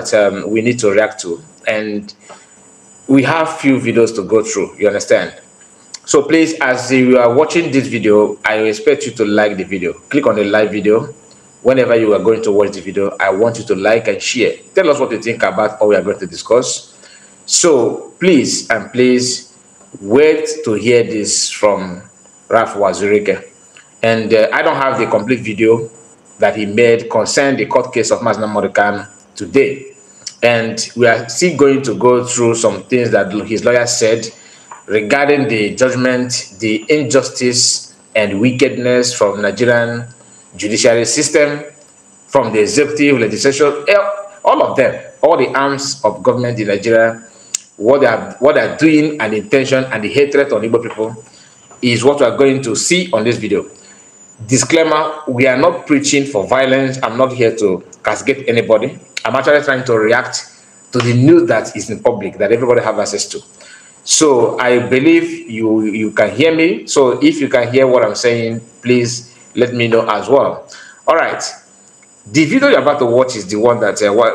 that um, we need to react to. And we have few videos to go through, you understand? So please, as you are watching this video, I expect you to like the video. Click on the live video. Whenever you are going to watch the video, I want you to like and share. Tell us what you think about what we are going to discuss. So please, and please, wait to hear this from Raf Wazurike, And uh, I don't have the complete video that he made concerning the court case of Masna Morikan today and we are still going to go through some things that his lawyer said regarding the judgment, the injustice and wickedness from Nigerian judiciary system, from the executive, legislature, eh, all of them, all the arms of government in Nigeria, what they are, what they are doing and intention and the hatred on Igbo people is what we are going to see on this video. Disclaimer, we are not preaching for violence. I'm not here to castigate anybody. I'm actually trying to react to the news that is in public that everybody have access to. So I believe you you can hear me. So if you can hear what I'm saying, please let me know as well. All right. The video you're about to watch is the one that uh, what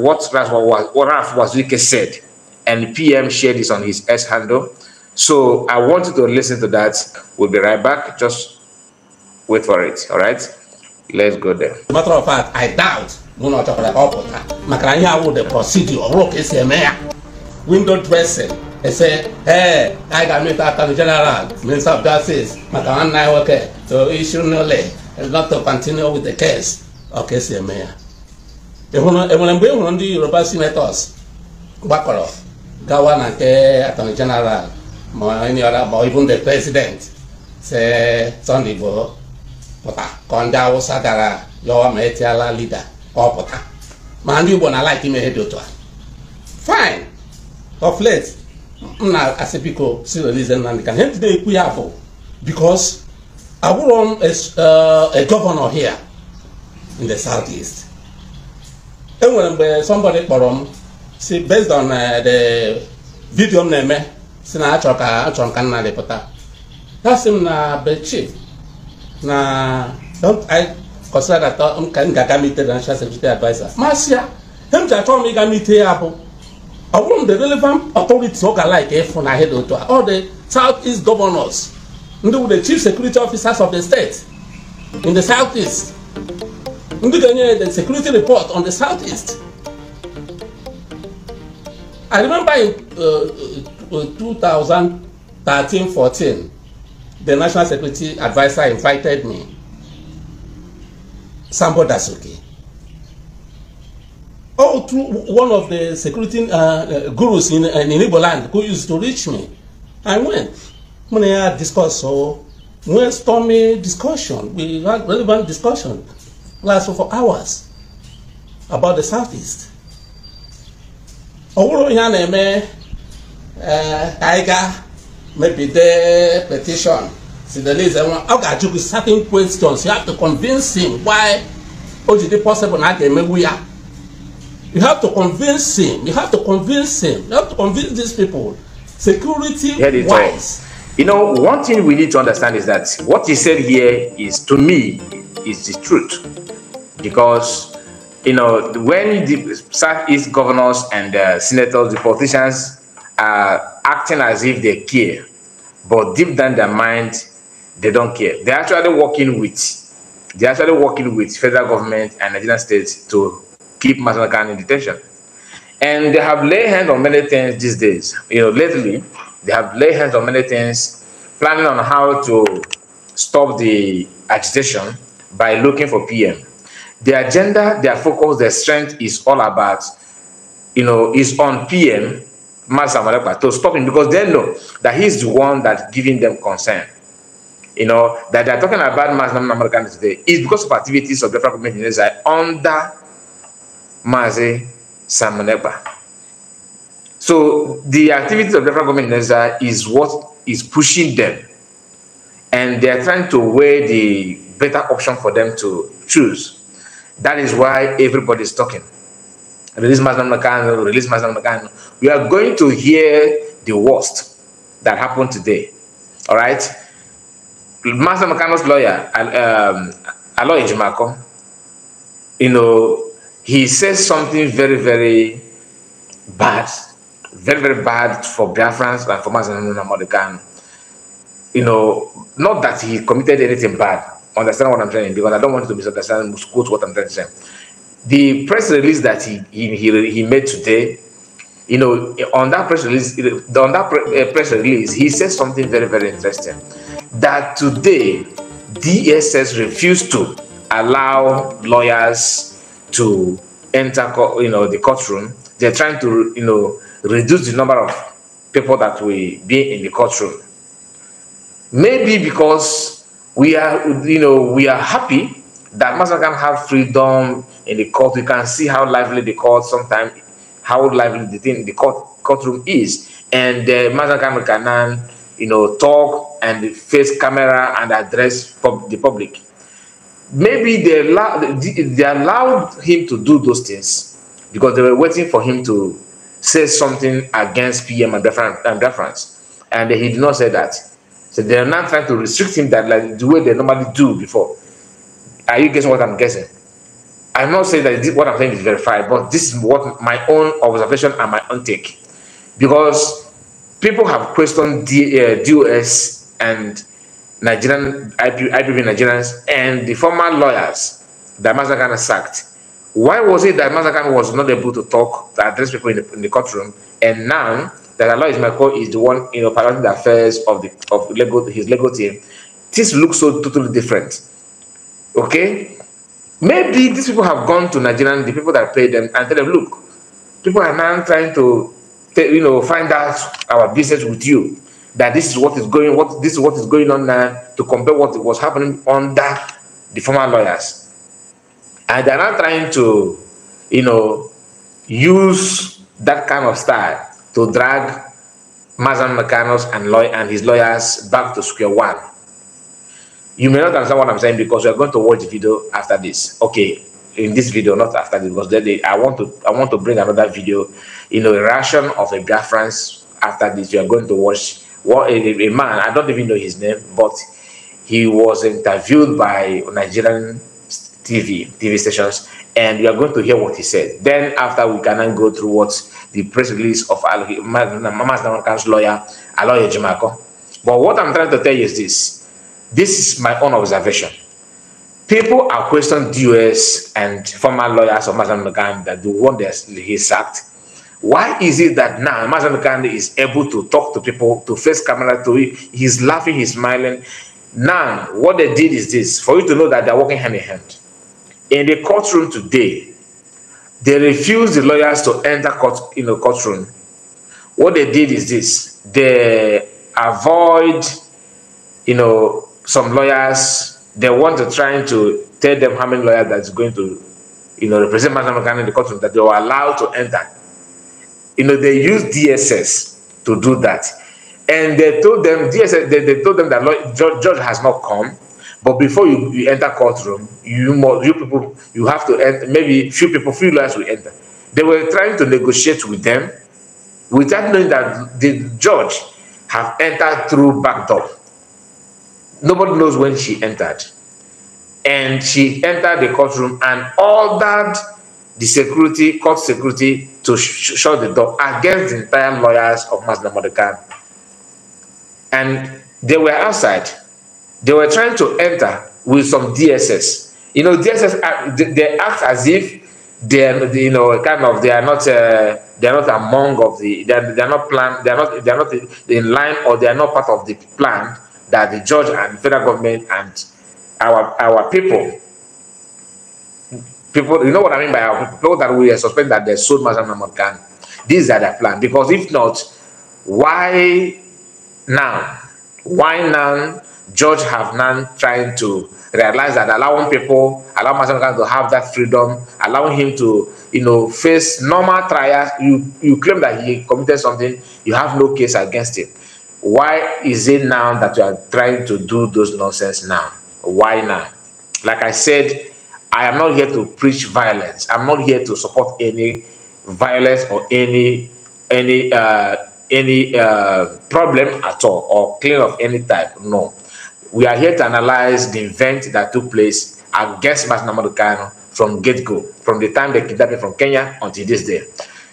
what Ralph, what, what Ralph Wazuke said, and PM shared this on his S handle. So I want you to listen to that. We'll be right back. Just wait for it. All right. Let's go there. matter of fact, I doubt n'ụlọ ọ chọkwara ka ọ pụta maka na ihe awụ de prọsidi ọ ka esi eme ya windo dresin ese ee anyị ga-amịta aka gị general of maka nwanne anyị nwoke to issue nole continue with the case ọ esi eme ya enwere mgbe ị hụrụ ndị yoruba senators gbakọrọ gawa na nke atọni jeneral president se pụta ka ndị gara yọwa ma etiala lida ọ pụta ma ndị Igbo na-alaik ime ihe dị otu a fine of late m na-asị biko Sirilize Nnamdi Kanu ndị na-ekwu ya bụ because abụrụ m a uh, govnor here in the southeast enwere mgbe somebody kpọrọ m si based on uh, the video m na-eme si na achọ ka achọ ka nna pụta ya si m na be na kɔsira ka taa n kan ka ka mi te financial security adviser maa sia hem ta tɔn mi ka mi te abo ɔwɔm the relevant authorities, authority ɔka like ɛfun ahe de oto all the south east governors ndị wụ the chief security officers of the state in the south east ndị ga-enye the security report on the south east i remember in uh, uh, 2013 14 the national security adviser invited me that's okay. All oh, through one of the security uh, uh, gurus in, uh, in Igbo land who used to reach me. I went. Ah, when I had discussed, so we had stormy discussion. We had relevant discussion lasted for hours about the Southeast. ọwụrụ ya na-eme ka anyị ga mepide petishọn Senegalese, I want to ask you certain questions. You have to convince him why o possible Not a ga You have to convince him. You have to convince him. You have to convince these people. Security wise. You know, one thing we need to understand is that what he said here is, to me, is the truth. Because, you know, when the Southeast governors and uh, senators, the politicians are acting as if they care, but deep down their mind, they don't care. They're actually working with they're actually working with federal government and Nigerian states to keep Masanaka in detention. And they have laid hands on many things these days. You know, lately they have laid hands on many things, planning on how to stop the agitation by looking for PM. Their agenda, their focus, their strength is all about, you know, is on PM Master to stop him because they know that he's the one that's giving them concern you know, that they're talking about mass nominal Americans today is because of activities of different community units under Mazi Samuneba. So the activities of different government is what is pushing them. And they are trying to weigh the better option for them to choose. That is why everybody is talking. Release Mazda Nakano, release Mazda Nakano. We are going to hear the worst that happened today. All right? Master McCann's lawyer, um, Aloy Jumako, you know, he says something very, very bad, very, very bad for Biafrans and for Master Mordegan. You know, not that he committed anything bad. Understand what I'm saying? Because I don't want to misunderstand, quote what I'm trying to say. The press release that he, he, he, he made today you know, on that press release, on that uh, press release, he said something very, very interesting that today DSS refused to allow lawyers to enter you know the courtroom. They're trying to you know reduce the number of people that will be in the courtroom. Maybe because we are you know we are happy that Master can have freedom in the court. We can see how lively the court sometimes, how lively the thing the court courtroom is, and uh, Master Kanan you know, talk and face camera and address pub the public. Maybe they, they allowed him to do those things because they were waiting for him to say something against PM and reference. And he did not say that. So they are now trying to restrict him that like the way they normally do before. Are you guessing what I'm guessing? I'm not saying that what I'm saying is verified, but this is what my own observation and my own take. Because people have questioned the, uh, DOS and Nigerian IP, IPB Nigerians and the former lawyers that Mazakan sacked. Why was it that Mazakan was not able to talk to address people in the, in the courtroom, and now that Allah court is the one you know the affairs of the of legal his legal team? This looks so totally different. Okay, maybe these people have gone to Nigerian, the people that paid them, and tell them, look, people are now trying to you know, find out our business with you. That this is what is going, what this is what is going on now to compare what was happening under the former lawyers, and they're not trying to, you know, use that kind of style to drag Mazan Mecanos and and his lawyers back to square one. You may not understand what I'm saying because we are going to watch the video after this. Okay, in this video, not after this, because then they, I want to I want to bring another video you know, a reaction of a Biafrans after this. You are going to watch what a, a man, I don't even know his name, but he was interviewed by Nigerian TV, TV stations, and you are going to hear what he said. Then after we can go through what the press release of Mama's Namankan's lawyer, Aloye Jimako. But what I'm trying to tell you is this. This is my own observation. People are questioning the US and former lawyers of Mama's McGann that the one that he sacked why is it that now Mazen Gandhi is able to talk to people, to face camera, to he's laughing, he's smiling? Now, what they did is this for you to know that they're working hand in hand. In the courtroom today, they refused the lawyers to enter court in the courtroom. What they did is this they avoid, you know, some lawyers. They want to try to tell them how many lawyers that's going to, you know, represent Mazen Gandhi in the courtroom that they were allowed to enter you know, they use DSS to do that. And they told them, DSS, they, they told them that law, judge, judge has not come. But before you, you enter courtroom, you must, you people, you have to enter, maybe few people, few lawyers will enter. They were trying to negotiate with them without knowing that the judge have entered through back door. Nobody knows when she entered. And she entered the courtroom and ordered the security, court security, to sh shut the door against the entire lawyers of Masna Mordekan. And they were outside. They were trying to enter with some DSS. You know, DSS, they, they act as if they're, you know, kind of, they are not, uh, they are not among of the, they are, they are not planned, they are not, they are not in line or they are not part of the plan that the judge and federal government and our, our people people, you know what I mean by people that we suspect that they sold Mazam Namarkan. These are their plan. Because if not, why now? Why now George Hafnan trying to realize that allowing people, allow Mazam to have that freedom, allowing him to, you know, face normal trials. You, you claim that he committed something, you have no case against him. Why is it now that you are trying to do those nonsense now? Why now? Like I said, I am not here to preach violence. I'm not here to support any violence or any any uh, any uh, problem at all or claim of any type. No, we are here to analyze the event that took place against Masina Madukano from get go, from the time they kidnapped him from Kenya until this day.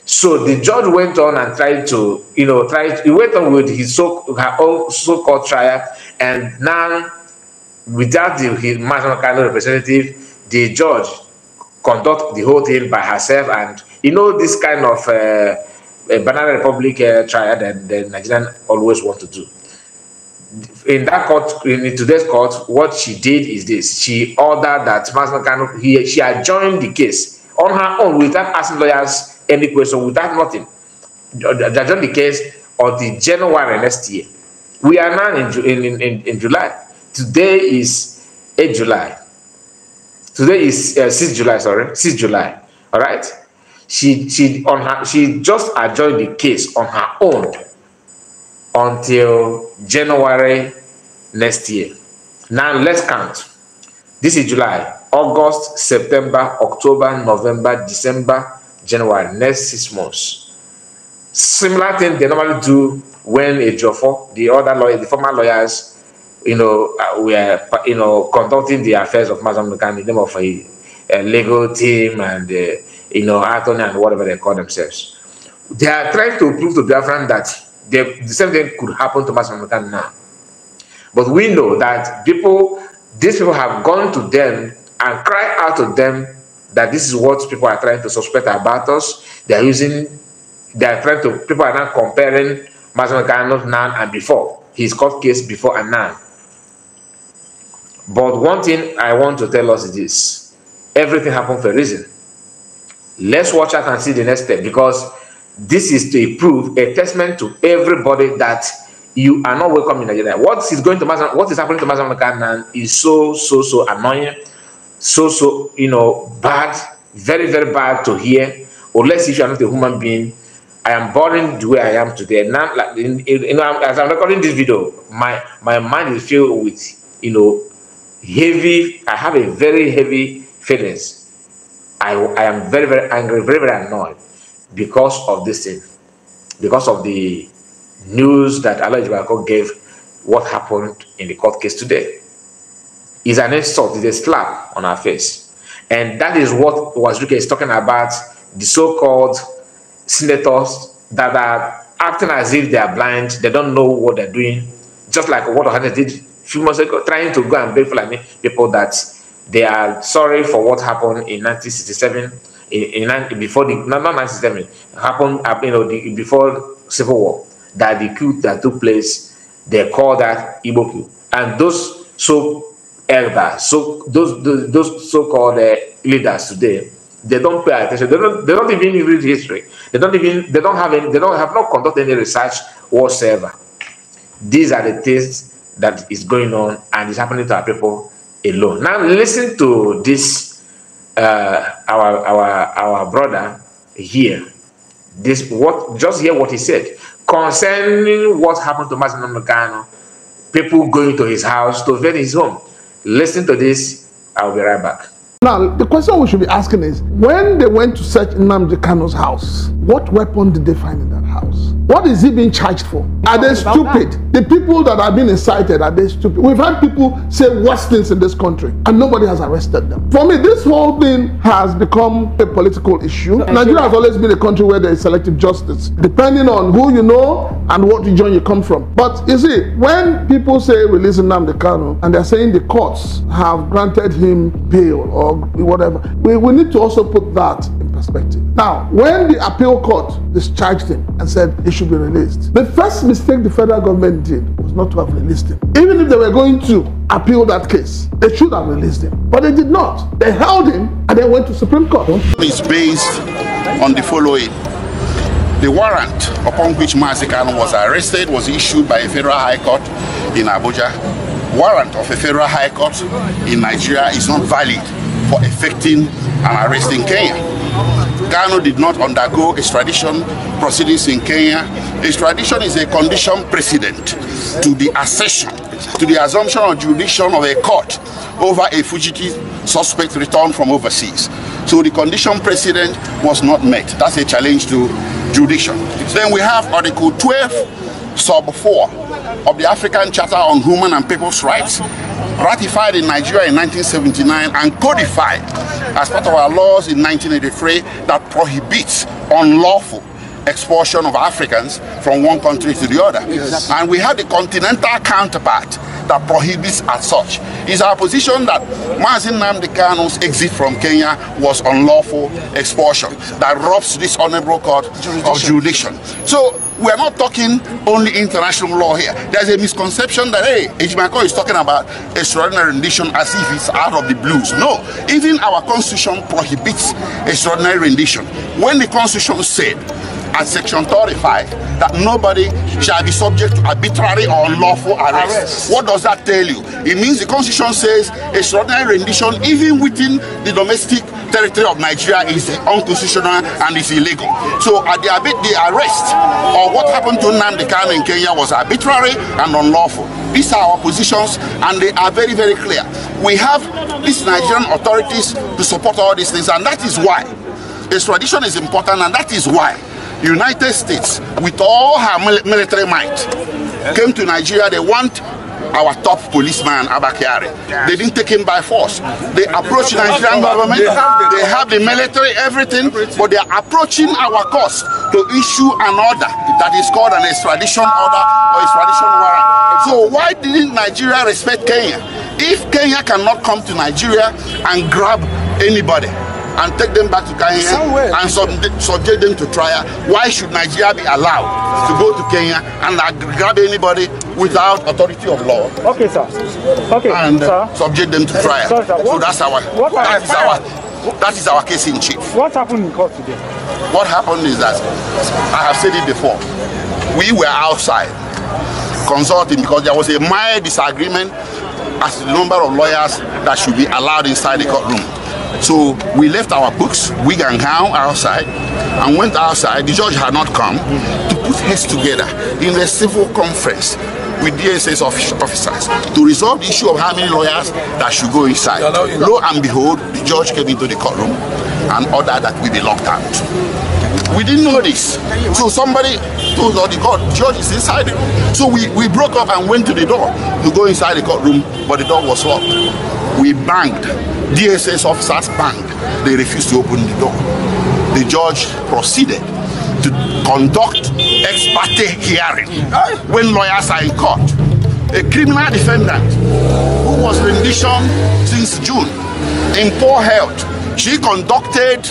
So the judge went on and tried to, you know, tried. He went on with his so her own so-called trial, and now without the, his Masina representative the judge conduct the whole thing by herself. And you know, this kind of uh, Banana Republic uh, trial that the Nigerian always want to do. In that court, in today's court, what she did is this: she ordered that Masna Kano he she adjourned the case on her own without asking lawyers any question, without nothing. Adjourned the case the January next year. We are now in in, in, in July. Today is 8 July. today is uh, July, sorry, 6 July. All right. She she on her she just adjourned the case on her own until January next year. Now let's count. This is July, August, September, October, November, December, January, next six months. Similar thing they normally do when a Jofo, the other lawyer, the former lawyers you know, uh, we are, you know, conducting the affairs of Mazam in the name of a, a legal team and, uh, you know, attorney and whatever they call themselves. They are trying to prove to Biafran that they, the same thing could happen to Mazam now. But we know that people, these people have gone to them and cried out to them that this is what people are trying to suspect about us. They are using, they are trying to, people are now comparing Mazam Nukan now and before, his court case before and now but one thing I want to tell us is this everything happened for a reason. Let's watch out and see the next step because this is to prove a testament to everybody that you are not welcome in Nigeria. What is going to Mazam, what is happening to Mazamakanan is so so so annoying, so so you know bad, very very bad to hear. Unless if you are not a human being, I am boring the way I am today. Now, like, as I'm recording this video, my my mind is filled with you know heavy, I have a very heavy feelings. I, I am very, very angry, very, very annoyed because of this thing, because of the news that Allah gave what happened in the court case today. Is an insult, is a slap on our face. And that is what Wazuka is talking about the so called senators that are acting as if they are blind, they don't know what they're doing, just like what Ohana did few months ago trying to go and beg Fulani people that they are sorry for what happened in 1967, in, in before the not 1967 happened, uh, you know, the, before civil war that the coup that took place, they call that Igbo coup, and those so elders, so those those, those so-called uh, leaders today they don't pay attention. They don't. They don't even read history. They don't even. They don't have any. They don't have not conducted any research whatsoever. These are the things that is going on and is happening to our people alone. Now listen to this, uh, our our our brother here. This what just hear what he said concerning what happened to Mazin Nagano, people going to his house to visit his home. Listen to this. I'll be right back. Now, the question we should be asking is, when they went to search Namdi Kano's house, what weapon did they find in that house. What is he being charged for? Are they stupid? That. The people that are being incited, are they stupid? We've had people say worse things in this country and nobody has arrested them. For me, this whole thing has become a political issue. So, Nigeria has always been a country where there is selective justice, depending on who you know and what region you come from. But you see, when people say releasing Namdi Kanu and they're saying the courts have granted him bail or whatever, we, we need to also put that perspective. Now, when the appeal court discharged him and said he should be released, the first mistake the federal government did was not to have released him. Even if they were going to appeal that case, they should have released him. But they did not. They held him and they went to Supreme Court. It's based on the following. The warrant upon which Mazikan was arrested was issued by a federal high court in Abuja. Warrant of a federal high court in Nigeria is not valid for effecting an arrest in Kenya. Kano did not undergo extradition proceedings in Kenya. Extradition is a condition precedent to the accession, to the assumption of jurisdiction of a court over a fugitive suspect returned from overseas. So the condition precedent was not met. That's a challenge to jurisdiction. Then we have Article 12 Sub 4 of the African Charter on Human and People's Rights, ratified in Nigeria in 1979 and codified as part of our laws in 1983 that prohibits unlawful expulsion of Africans from one country to the other. And we have the continental counterpart that prohibits as such. It's our position that Mazin Namdekano's exit from Kenya was unlawful expulsion that robs this honorable court jurisdiction. of jurisdiction. So we're not talking only international law here. There's a misconception that, hey, Ejimako is talking about extraordinary rendition as if it's out of the blues. No, even our constitution prohibits extraordinary rendition. When the constitution said and Section 35 that nobody shall be subject to arbitrary or unlawful arrest. arrest. What does that tell you? It means the Constitution says extraordinary rendition, even within the domestic territory of Nigeria, is unconstitutional and is illegal. So at the, the arrest or what happened to Nnamdi Kanu in Kenya was arbitrary and unlawful. These are our positions and they are very, very clear. We have these Nigerian authorities to support all these things and that is why. Extradition is important and that is why United States, with all her military might, came to Nigeria. They want our top policeman Abakari. They didn't take him by force. They approached the Nigerian government. They have the military, everything, but they are approaching our cause to issue an order that is called an extradition order or extradition warrant. So why didn't Nigeria respect Kenya? If Kenya cannot come to Nigeria and grab anybody, and take them back to Kenya Somewhere. and sub subject them to trial. Why should Nigeria be allowed to go to Kenya and grab anybody without authority of law? Okay, sir. Okay, and uh, sir. subject them to trial. Sorry, sir. So that's our what that is our that is our case in chief. What happened in court today? What happened is that I have said it before. We were outside consulting because there was a mild disagreement as the number of lawyers that should be allowed inside the courtroom. So we left our books, wig and gown outside, and went outside. The judge had not come to put heads together in the civil conference with DSS officers to resolve the issue of how many lawyers that should go inside. Lo and behold, the judge came into the courtroom and ordered that we be locked out. We didn't know this. So somebody told us, the court, judge is inside the room. So we, we broke up and went to the door to go inside the courtroom, but the door was locked. We banged. DSS officers banged. They refused to open the door. The judge proceeded to conduct ex parte hearing when lawyers are in court. A criminal defendant who was rendition since June in poor health, she conducted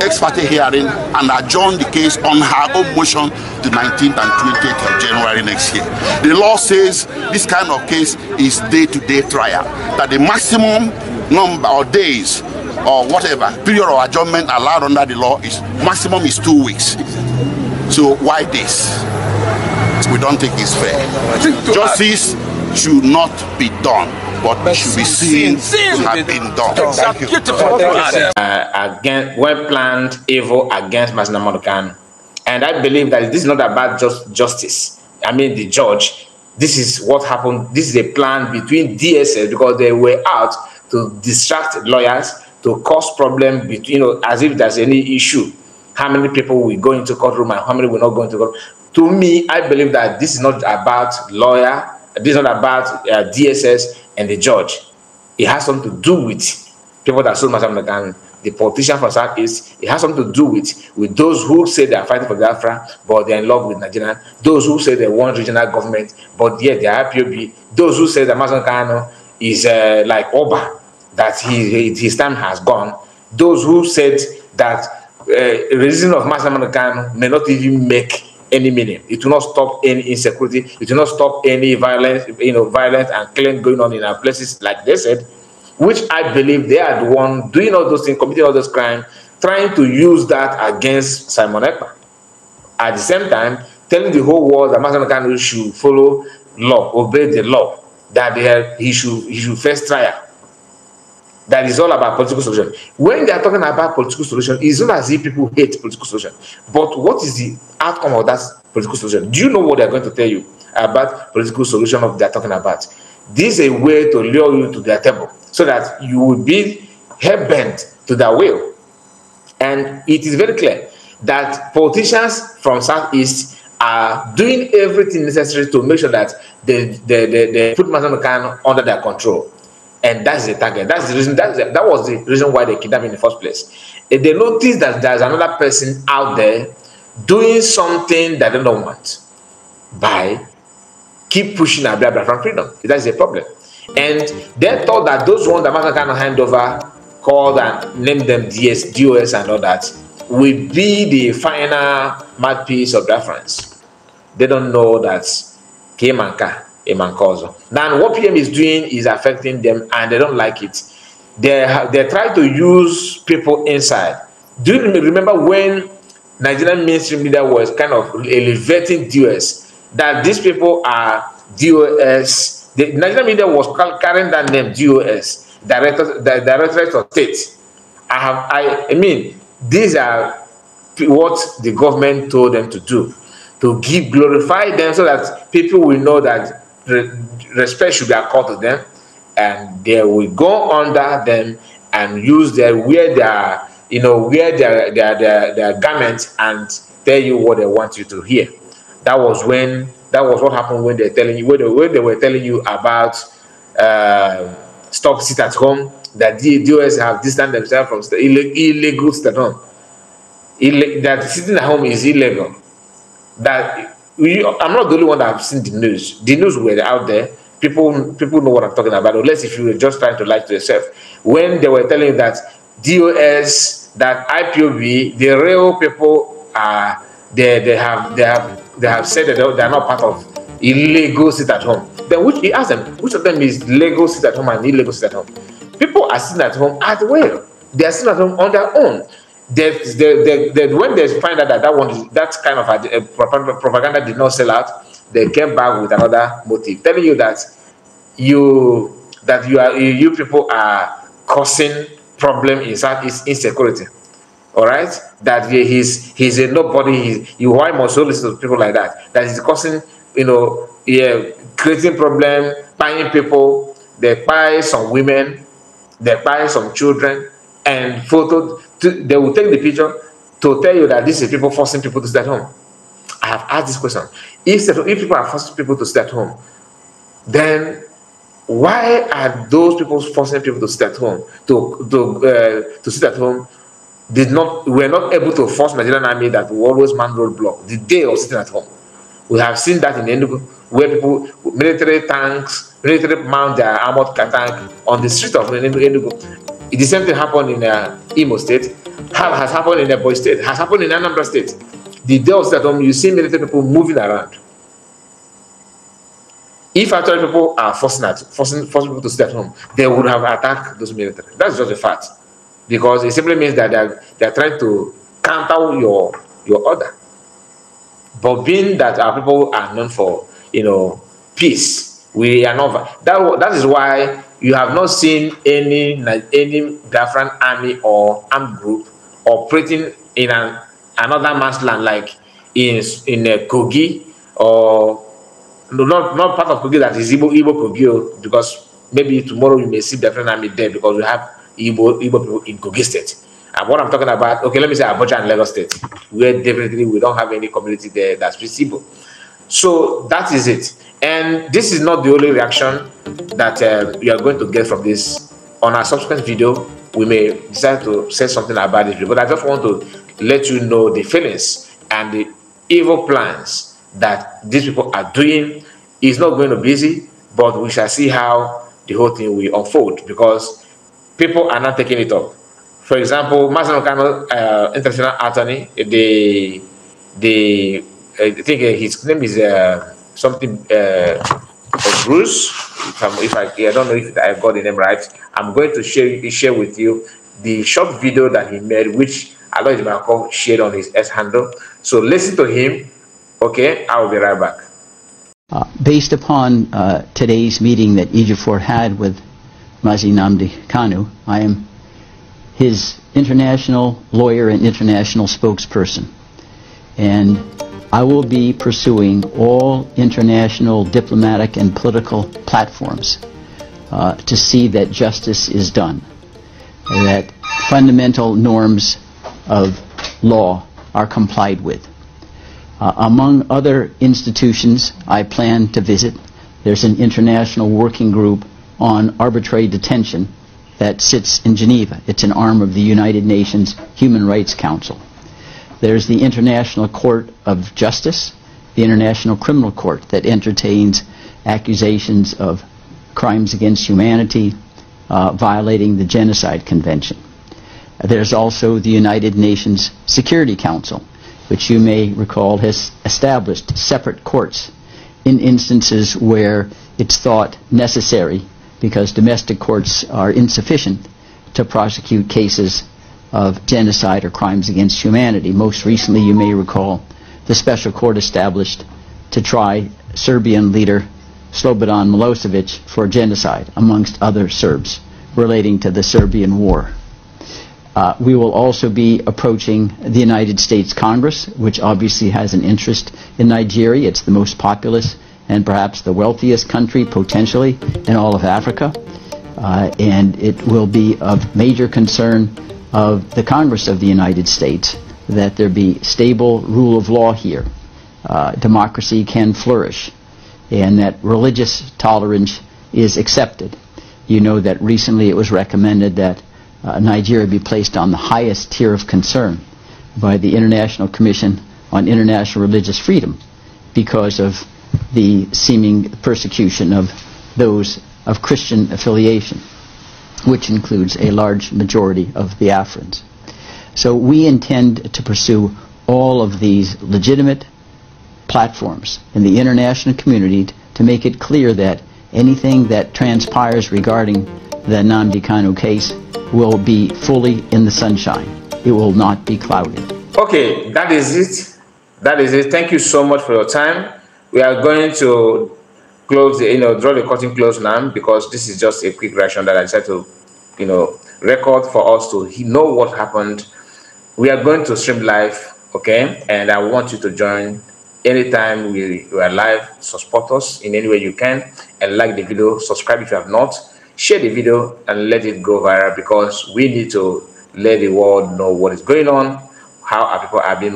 ex parte hearing and adjourn the case on her own motion the 19th and 20th of January next year. The law says this kind of case is day-to-day -day trial, that the maximum number of days or whatever period of adjournment allowed under the law is maximum is two weeks. So why this? We don't think it's fair. Justice should not be done but, but should be seen, what has been done. Exactly. you. Uh, against well planned evil against Masina Monokan. And I believe that this is not about just justice. I mean the judge. This is what happened. This is a plan between DSS because they were out to distract lawyers, to cause problem between you know, as if there's any issue. How many people will go into courtroom and how many will not go into court? To me, I believe that this is not about lawyer, this is not about uh, DSS, and the judge. It has something to do with people that sold much and the politician from Southeast. It has something to do with, with those who say they are fighting for Biafra, but they're in love with Nigeria. Those who say they want regional government, but yet they are IPOB. Those who say that Mazam is uh, like Oba, that he, his time has gone. Those who said that uh, reason of Mazam may not even make any meaning. It will not stop any insecurity. It will not stop any violence, you know, violence and killing going on in our places, like they said, which I believe they are the one doing all those things, committing all those crimes, trying to use that against Simon Ekpa. At the same time, telling the whole world that Master Kanu should follow law, obey the law, that they, he, should, he should face trial that is all about political solution. When they are talking about political solution, it's not as if people hate political solution. But what is the outcome of that political solution? Do you know what they're going to tell you about political solution of they're talking about? This is a way to lure you to their table so that you will be bent to their will. And it is very clear that politicians from Southeast are doing everything necessary to make sure that they, they, they, they put Mazamukan under their control and that's the target that's the reason that's the, that was the reason why they kidnapped in the first place if they notice that there's another person out there doing something that they don't want by keep pushing Abia from freedom that's the problem and they thought that those ones that Martin cannot hand over called and named them DS, DOS and all that will be the final mouthpiece of reference. They don't know that Kemanka a cause. Then what PM is doing is affecting them and they don't like it. They, they try to use people inside. Do you remember when Nigerian mainstream media was kind of elevating DOS? That these people are DOS. The Nigerian media was carrying that name DOS, Director, the Directorate of State. I have, I, I mean, these are what the government told them to do to give glorify them so that people will know that respect should be accorded to them, and they will go under them and use their wear their you know wear their their their, their garments and tell you what they want you to hear. That was when that was what happened when they're telling you when they, when they were telling you about uh, stop sit at home that the DOS have distanced themselves from the illegal, illegal sit at home. Illegal that sitting at home is illegal. That we, I'm not the only one that have seen the news. The news were out there. People, people know what I'm talking about, unless if you were just trying to lie to yourself. When they were telling that DOS, that IPOB, the real people are they, they have they have they have said that they are not part of illegal sit at home. Then which he asked them which of them is legal sit at home and illegal sit at home? People are sitting at home as well. They are sitting at home on their own when they find out that that one, that kind of a, eh, a propaganda did not sell out, they came back with another motive, telling you that you that you are you people are causing problem in Southeast insecurity. All right, that he's he's a nobody. you why must you listen to people like that? That is causing you know yeah creating problem, buying people. They buy some women, they buy some children, and photo to, they will take the picture to tell you that this is people forcing people to stay at home. I have asked this question. If, if people are forcing people to stay at home, then why are those people forcing people to stay at home to to uh, to sit at home? Did not are not able to force Nigerian army that will always man roadblock the day of sitting at home. We have seen that in Enugu where people military tanks military mount their armored tank on the street of Enugu the same thing happened in uh, Imo State, has happened in Ebonyi State, has happened in Anambra State. The day that um, you see military people moving around. If actually people are forcing, at, forcing, forcing people to stay at home, they would have attacked those military. That's just a fact. Because it simply means that they are, they are trying to counter your, your order. But being that our people are known for, you know, peace, we are not. That, that is why you have not seen any any Biafran army or armed group operating in an, another man's land like in in uh, Kogi or no, not not part of Kogi that is Igbo Igbo Kogi oh, because maybe tomorrow you may see Biafran army there because we have Igbo Igbo people in Kogi state. And what I'm talking about, okay, let me say Abuja and Lagos state, where definitely we don't have any community there that's visible. So that is it. And this is not the only reaction that uh, you are going to get from this. On our subsequent video, we may decide to say something about it, but I just want to let you know the feelings and the evil plans that these people are doing. is not going to be easy, but we shall see how the whole thing will unfold because people are not taking it up. For example, Masano uh, international attorney, the the I think uh, his name is uh, something. Uh, Bruce, if, I'm, if I, I don't know if I got the name right, I'm going to share share with you the short video that he made, which Alois Malcolm shared on his S handle. So listen to him. Okay, I will be right back. Uh, based upon uh, today's meeting that Ejiofor had with Mazinamdi Kanu, I am his international lawyer and international spokesperson. And I will be pursuing all international diplomatic and political platforms uh, to see that justice is done, that fundamental norms of law are complied with. Uh, among other institutions I plan to visit, there's an international working group on arbitrary detention that sits in Geneva. It's an arm of the United Nations Human Rights Council. There's the International Court of Justice, the International Criminal Court that entertains accusations of crimes against humanity, uh, violating the Genocide Convention. There's also the United Nations Security Council, which you may recall has established separate courts in instances where it's thought necessary because domestic courts are insufficient to prosecute cases of genocide or crimes against humanity. Most recently, you may recall, the special court established to try Serbian leader Slobodan Milosevic for genocide, amongst other Serbs, relating to the Serbian war. Uh, we will also be approaching the United States Congress, which obviously has an interest in Nigeria. It's the most populous and perhaps the wealthiest country potentially in all of Africa. Uh, and it will be of major concern of the Congress of the United States that there be stable rule of law here, uh, democracy can flourish, and that religious tolerance is accepted. You know that recently it was recommended that uh, Nigeria be placed on the highest tier of concern by the International Commission on International Religious Freedom because of the seeming persecution of those of Christian affiliation which includes a large majority of the Biafrans. So we intend to pursue all of these legitimate platforms in the international community to make it clear that anything that transpires regarding the Namdi Kanu case will be fully in the sunshine. It will not be clouded. Okay, that is it. That is it. Thank you so much for your time. We are going to close the, you know, draw the curtain close now because this is just a quick reaction that I decided to, you know, record for us to know what happened. We are going to stream live, okay? And I want you to join anytime we, we are live. So support us in any way you can and like the video, subscribe if you have not, share the video and let it go viral because we need to let the world know what is going on, how our people are being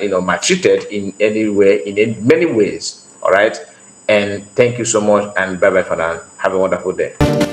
you know maltreated in any way, in many ways. All right. And thank you so much and bye bye for now. Have a wonderful day.